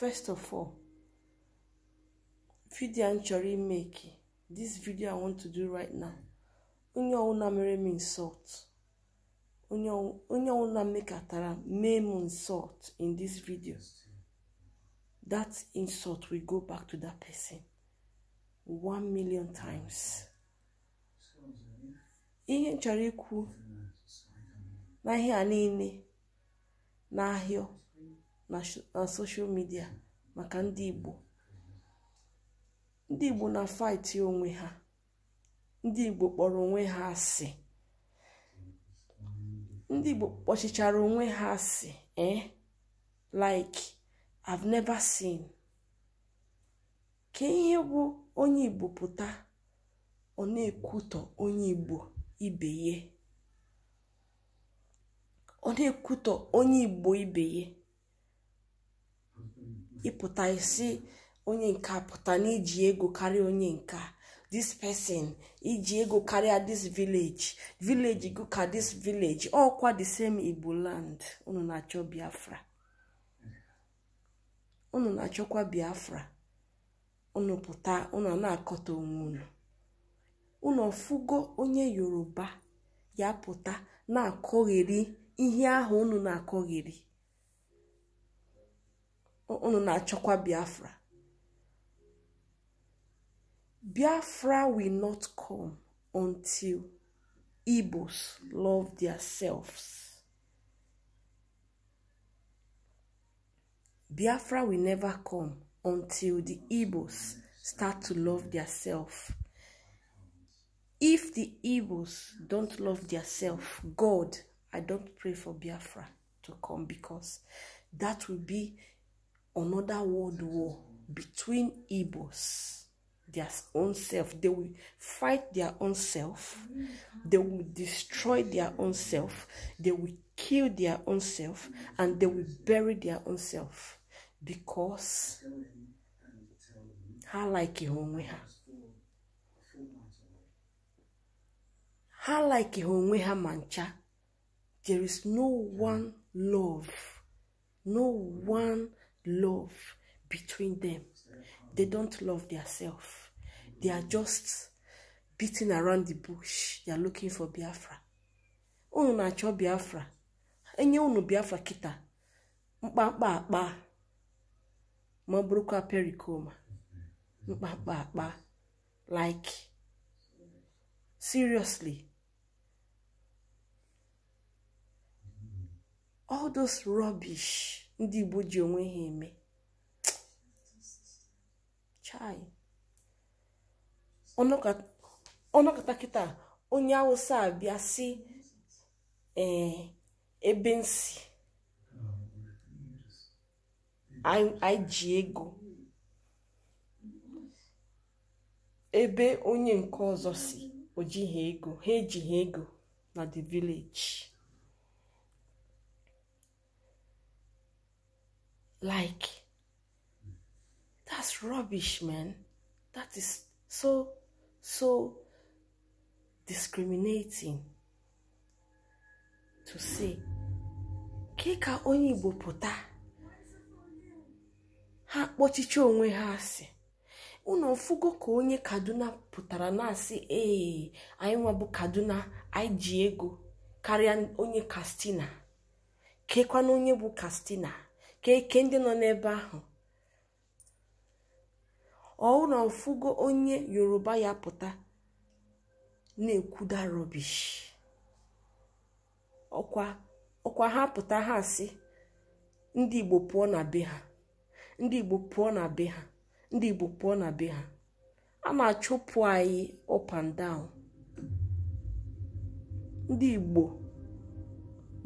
first of all vidio m chọrọ imeki this video i want to do right now onye ọwụna mere m insult onye ọwụna mekatara mee m insult in this video that insult will go back to that person one million times ihe m chọrọ ikwu n'ahịa niile n'ahịa na soshal midia maka ndị igbo ndị igbo na faịtị onwe ha ndị igbo kpọrọ onwe ha asị ndị igbo kpọchichara onwe ha asị eh like i've never seen ka ihe bụ onye igbo pụta ọ na-ekwutọ onye igbo ibe ye ọ na-ekwutọ onye igbo ibe ye. ịpụta isi onye nke pụta n'iji ego karịa onye nka this person iji ego karịa dis village village go ka this village ọkwa the same igbo land unu na-achọ biafra unu na-achọkwa biafra unu pụta unu na-akọta onwe unu unu ọfụgo onye yoruba ya pụta na-akọgheri ihe ahụ unu na-akọgheri unu na-achọkwa biafra biafra will not come until igbos love their selves. biafra will never come until the igbos start to love their self. if the igbos don't love their self, god i don't pray for biafra to come because that will be another world war between Igbos, their own self. They will fight their own self. They will destroy their own self. They will kill their own self. And they will bury their own self. Because ha like onwe ha. Ha like onwe ha mancha. There is no one love, no one love between them. They don't love themselves. They are just beating around the bush. They are looking for Biafra. Unu na-achọ Biafra. Enye unu Biafra kita. mkpa akpa. Ma ọ bụrụkwa mkpa Mkpakpa akpa. Like. Seriously. All those rubbish. ndị Igbo ji onwe ha eme chai ọnọkọta kịta onye Awụsa abịa si ebe nsi anyị ji ego ebe onye nke ọzọ si o ego ha ha ego na the village Like, that's rubbish, man. That is so, so discriminating to say. Keka onye Igbo pụta. Ha kpọchicha onwe ha asị. ụlọ mfugo ka onye kaduna pụtara na-asị ee anyị nwabụ kaduna anyị ji ego karịa onye kastina kekwana onye bụ kastina ka eke ndị nọ n'ebe ahụ na mfugo onye yoruba ya pụta na-ekwuda rọbish ọkwa ọkwa ha pụta ha si ndị igbo pụọ na be ha ndị igbo pụọ na ndị igbo pụọ na a na-achụpụ anyị up and down ndị igbo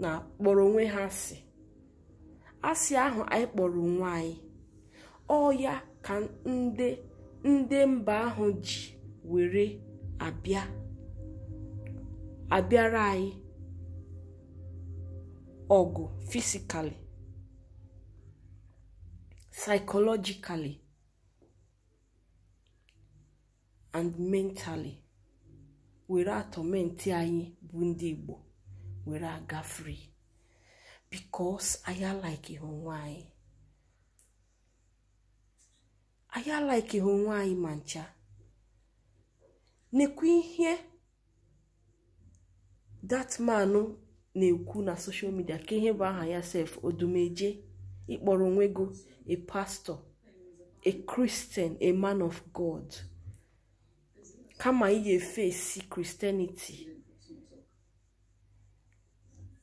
na-akpọrọ onwe ha asị asị ahụ anyị kpọrọ onwe anyị ọ ya ka ndị mba ahụ ji were abịa abịara anyị ọgụ fisikali psychologically and mentally were atọmenti anyị bụ ndị Igbo were aga free because anyị alaikighi onwe anyị anyị alaikighi onwe anyị ma ncha nekwa ihe dat na-ekwu na social midia ka ihe bụ aha ya sef odumeje ịkpọrọ onwe gị a pastor a christian a man of god kama ị ga esi kristeniti.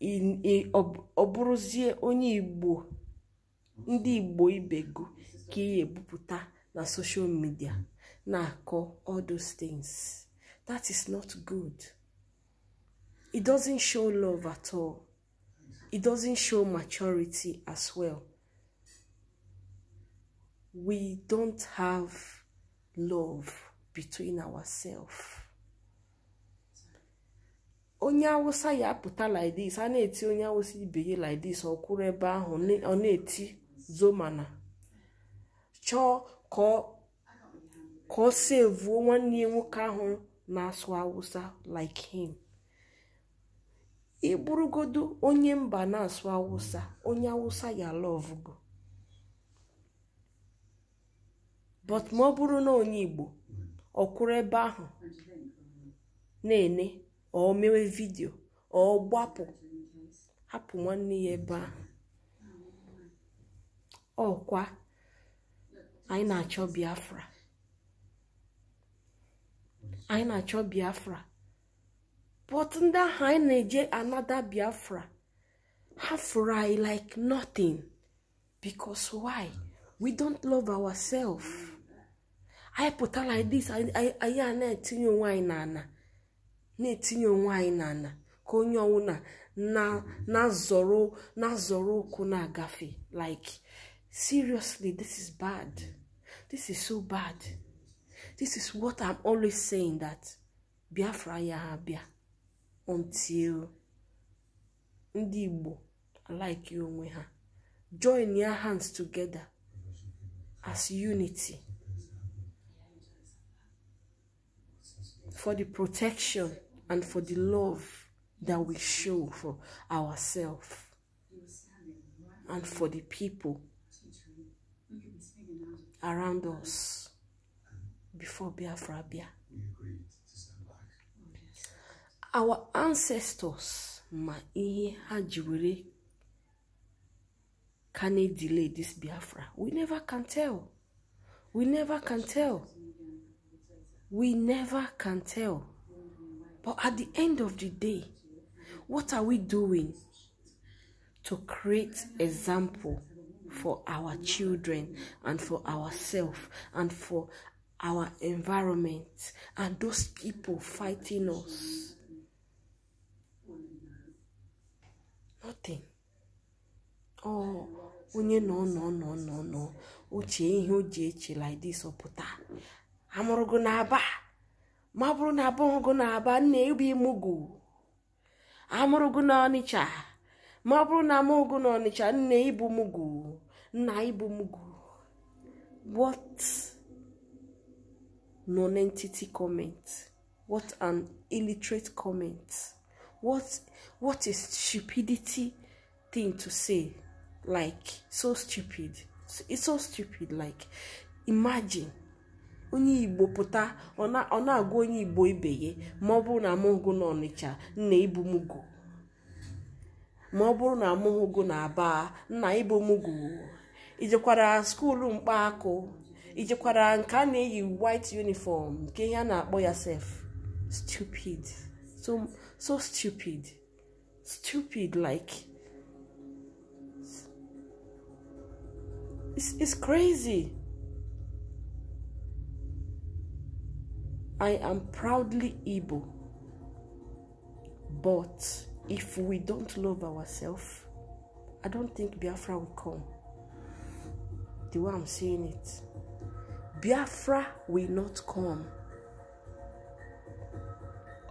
ọ bụrụzie onye igbo ndị igbo ibe gụ ka ị ebupụta na social media na-akọ all those things that is not good it doesn't show love at all it doesn't show maturity as well we don't have love between ourselves onye awụsa ya apụta lidis a na-eti onye awụsa ibe ya lidis ọ ebe ahụ ọ na-eti zomana chọọ ka ọ sevuo nwanne ya nwoke ahụ na-asụ awụsa like him ịbụrụgodu onye mba na-asụ awụsa onye awụsa ya lọvụgo but ma ọ bụrụ na onye igbo ọ kwụrụ ebe ahụ na-ene ọ mewe vidio ọ gbapụ hapụ nwanne ya ebe ahụ ọkwa anyị na-achọ biafra anyị na-achọ biafra but ndị ahụ anyị na-eje anada biafra ha fụrụ anyị like nothing because why we don't love ourself anyị pụta like this anyị a na-etinye onwe anyị n'ala na-etinye onwe anyị n'ala ka onye ọwụla na-azọrọ na-azọrọ ụkwụ na-agafe like seriously this is bad this is so bad this is what i'm always saying that biafra ya ha bịa until ndị igbo like onwe ha join your hands together as unity for the protection and for the love that we show for ourselves and for the people around us before Biafra Bia. Our ancestors ma ihe can it delay this Biafra? We never can tell. We never can tell. We never can tell. But at the end of the day, what are we doing to create example for our children and for ourselves and for our environment and those people fighting us? Nothing. Oh, unye no no no no no. Uche o like this ọpụta. Amụrụgo na ba? ma ọ bụrụ na abụghị na aba nna ịbụ imụgụ amụrụgụ na ọnịcha ma ọ bụrụ na amụghị na ọnịcha nna ịbụ mụgụ nna ibu mugu what non-entity comment what an illiterate comment what a is stupidity thing to say like so stupid it's so stupid like imagine onye igbo pụta ọ na-agwa onye igbo ibe ya ma ọ bụrụ na amụghụgo na ọnịcha nna ibumugo ma ọ bụrụ na amụghụgo na aba nna ibumugo ijekwara skuulu mkpaakụ ijekwara nke a na-eyi white uniform nke ihe a na-akpọ ya sef stupid so so stupid stupid like it's, it's crazy I am proudly Igbo. But if we don't love ourselves, I don't think Biafra will come. The way I'm saying it. Biafra will not come.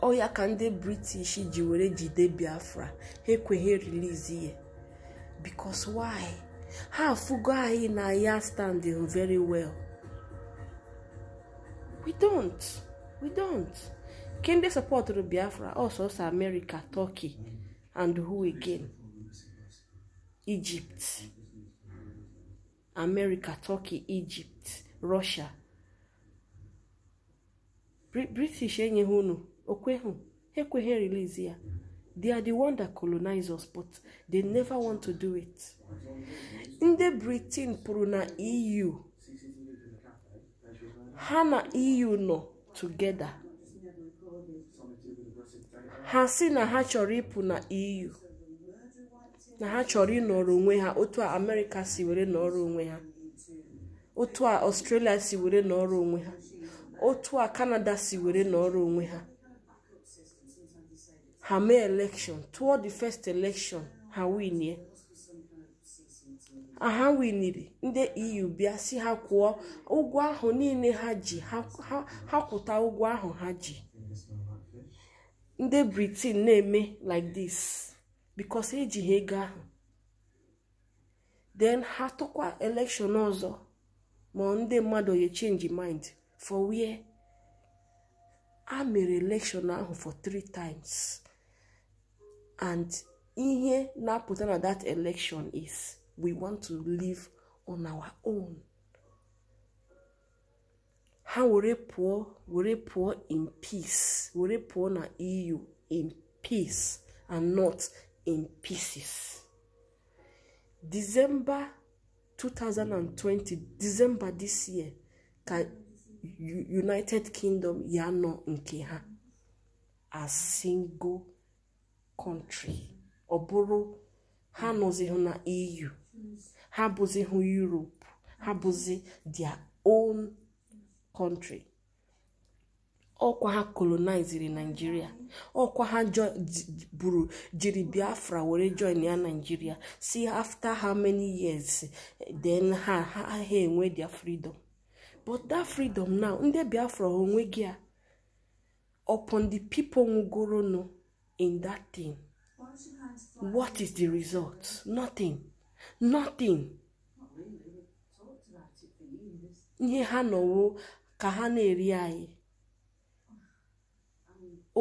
Oya can they British jiwere jide Biafra. Hekwe he release here. Because why? How fugo ayi na ya standing very well. We don't. we don't nke support sọpọtụrụ biafra ọsọsọ America turkey and who again egypt America turkey egypt russia british enyeghị unu okweghị ekweghị release ya they are the one that colonize us but they never want to do it ndị britain pụrụ na eu ha na eu nọ together ha si na ha chọrọ ịpụ na EU na ha chọrọ ịnọrọ onwe ha otu a amerịka si were nọrọ onwe ha otu a ọstrelia si were nọrọ onwe ha otu a kanada si were nọrọ onwe ha ha mee election tụọ the first election ha winie ha winiri ndị eu bịa si ha kwụọ ụgwọ ahụ niile ha ji ha kwụta ụgwọ ahụ ha ji ndị britain na-eme like this because eji ha ego ahụ then ha tụkwa election ọzọ ma ndị mmadụ ye change mind for wia a mere election ahụ for three times and ihe na-apụta na that election is we want to live on our own How ha were pụọ were pụọ in peace were pụọ na eu in peace and not in pieces december 2020 december this year can united kingdom yano nọ ha a single country Oboro, how ha nọzighị na eu ha bụzi hụ europe ha bụzi their own country ọkwa ha koloniziri naijiria ọkwa ha buru jiri biafra were join ya naijiria si after how many years then ha ha enwe their freedom but that freedom now ndị biafra gị a upon the people nwụgoronụ in that thing what is the result nothing nothing ihe ha nọwo ka ha na-eri anyị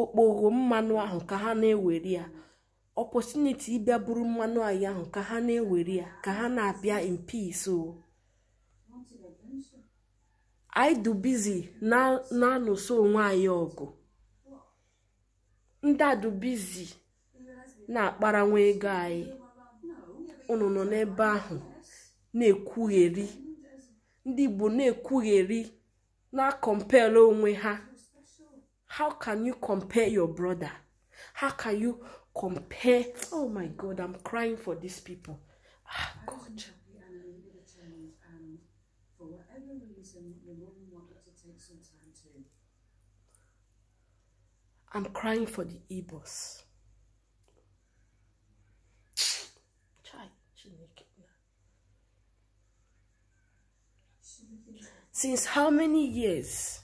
okpogho mmanụ ahụ ka ha na-ewere ya ọpọtuniti ịbịa bụrụ mmanụ anyị ahụ ka ha na-ewere ya ka ha na-abịa in peace o oh. anyị du bizi na-anụso onwe anyị ọgụ ndị a na-akparanwa ego anyị unu nọ n'ebe ahụ na-ekwugheri ndị igbo na-ekwugheri na-akọmpel onwe ha how can you compare your brother how can you compare oh my god i'm crying for these people ah god I'm crying for the Igbos. Since how many years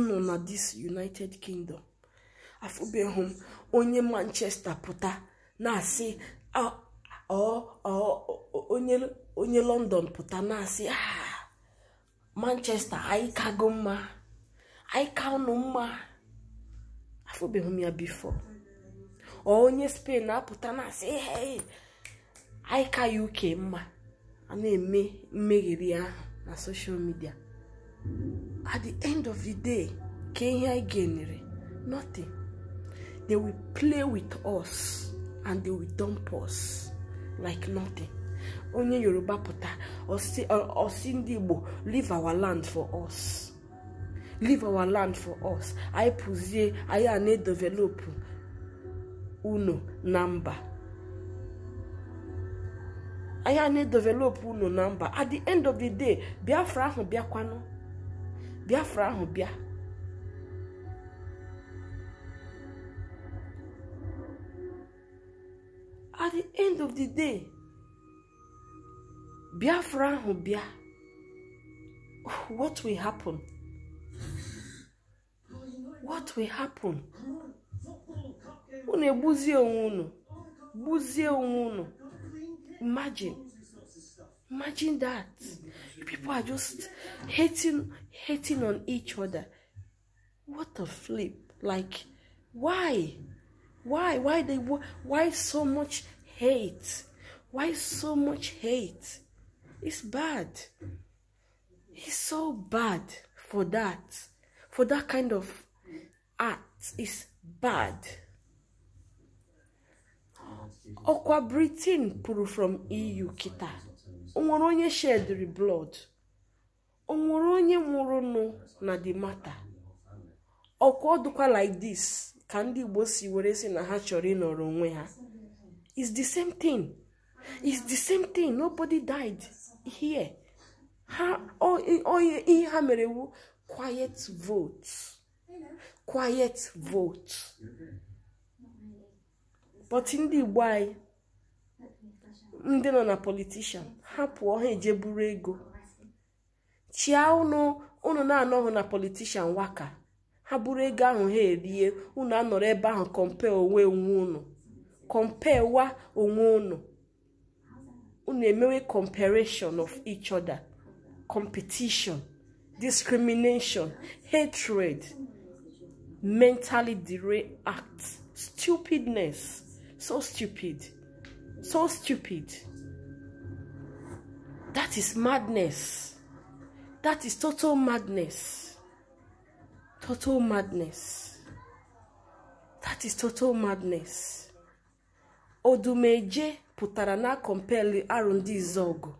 nọ na this United Kingdom afụbeghị m onye Manchester pụta na-asị onye London pụta na-asị ah Manchester anyị mma anyị ụnụ mma afụbeghị m ya bifo ọ onye Spain na-apụta na-asị anyị UK mma a na-eme mmegheri ahụ na soshal midia at the end of the day Kenya Genere, nothing they will play with us and they will dump us like nothing onye yoruba pụta osi ndị igbo leave our land for us leave our land for us anyị pụzie anyị a na-edevelopụ unu na mba anyị na-edevelopụ ụlọ na mba at the end of the day biafra ahụ bịakwanụ biafra ahụ bịa at the end of the day biafra ahụ bịa what will happen what will happen unu egbuzie onwe unu gbuzie onwe unu Imagine. Imagine that. People are just hating hating on each other. What a flip. Like why? Why? Why they why so much hate? Why so much hate? It's bad. It's so bad for that. For that kind of act. It's bad. ọkwa britain pụrụ from eu kịta onwere onye shedri blood onwere onye nwụrụ nụ na the matter ọkwa ọdụkwa like this ka ndị igbo si were si na ha chọrọ ịnọrọ onwe ha is the same thing is the same thing nobody died here ha ihe ha mere wu quiet vote quiet vote but ndị igbo anyị ndị nọ na politishan ha pụọ ha eje buru ego chia ụnụ unu na-anọghị na politishan waka ha buru ego ahụ ha erie unu anọrọ ebe ahụ kọmpe onwe onwe unu kọmpe wa onwe ụnụ ụnụ emewe comparison of each other competition discrimination hatred mentally derailed act stupidness So stupid. So stupid. That is madness. That is total madness. Total madness. That is total madness. Odumeje pụtara na compare R&D Zogu.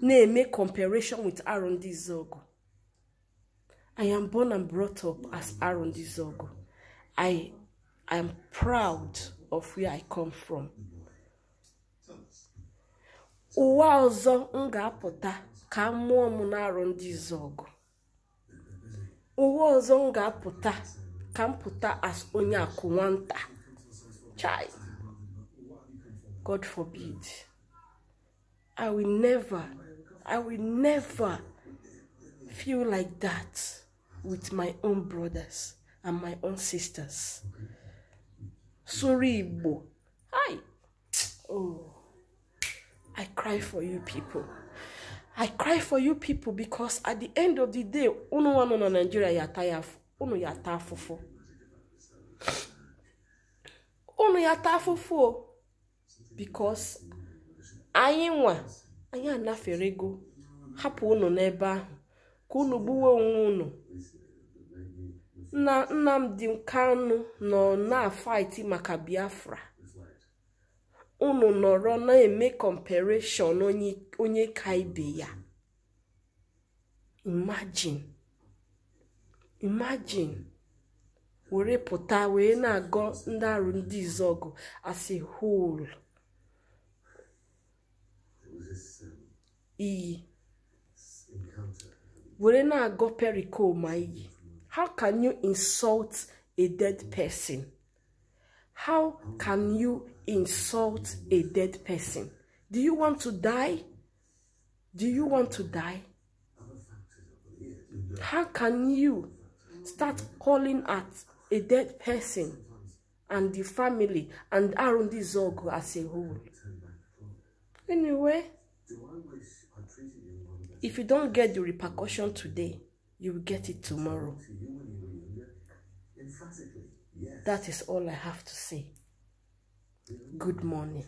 Na-eme comparison with R&D Zogu. I am born and brought up as Aaron Dizogo. I am proud of where I come from Uwa ọzọ m ga-apụta ka mmụọ m na-arụ ndị izu ọgụ ọzọ m ga-apụta ka m pụta as onye akụ nwata chai god forbid i will never i will never feel like that with my own brothers and my own sisters sụrụ Igbo hi oh, I cry for you people I cry for you people because at the end of the day unu nwa nọ na Nigeria ya ata ya unu ya ata afụfụ unu ya afụfụ because anyị nwa anyị ego hapụ unu n'ebe ahụ ka unu gbuwe onwe unu nna nnamdi kanu nọ na-afaiti maka biafra unu nọrọ na-eme kọmpereshọn onye ka ibe ya imagine were pụta wee na-agọ ndị arụ ndị asị hol iyi were na-agọ perikoma iyi How can you insult a dead person? How can you insult a dead person? Do you want to die? Do you want to die? How can you start calling at a dead person and the family and around this org as a whole? Anyway, if you don't get the repercussion today, you will get it tomorrow. That is all I have to say. Good morning.